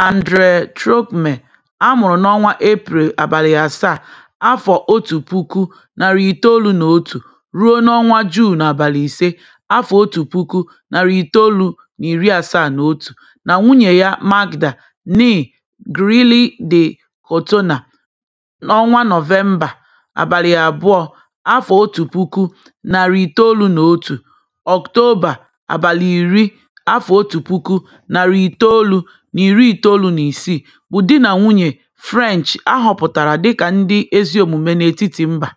andre Trogmọ a mụrụ n'ọnwa Eprel abalị asaa, afọ otu puku, narị itoolu na otu ruo n'ọnwa Juun abalị ise, afọ otu puku, narị itoolu na iri asaa na otu, na nwunye ya Magda (née) Grilling de Cotonah n'ọnwa Nọvemba abalị abụọ, afọ otu puku, narị itoolu na otu (Ọktoba abalị iri afọ otu puku, narị itoolu na iri itoolu na isii bụ di na nwunye French a họpụtara dịka ndị ezi omume n'etiti mba.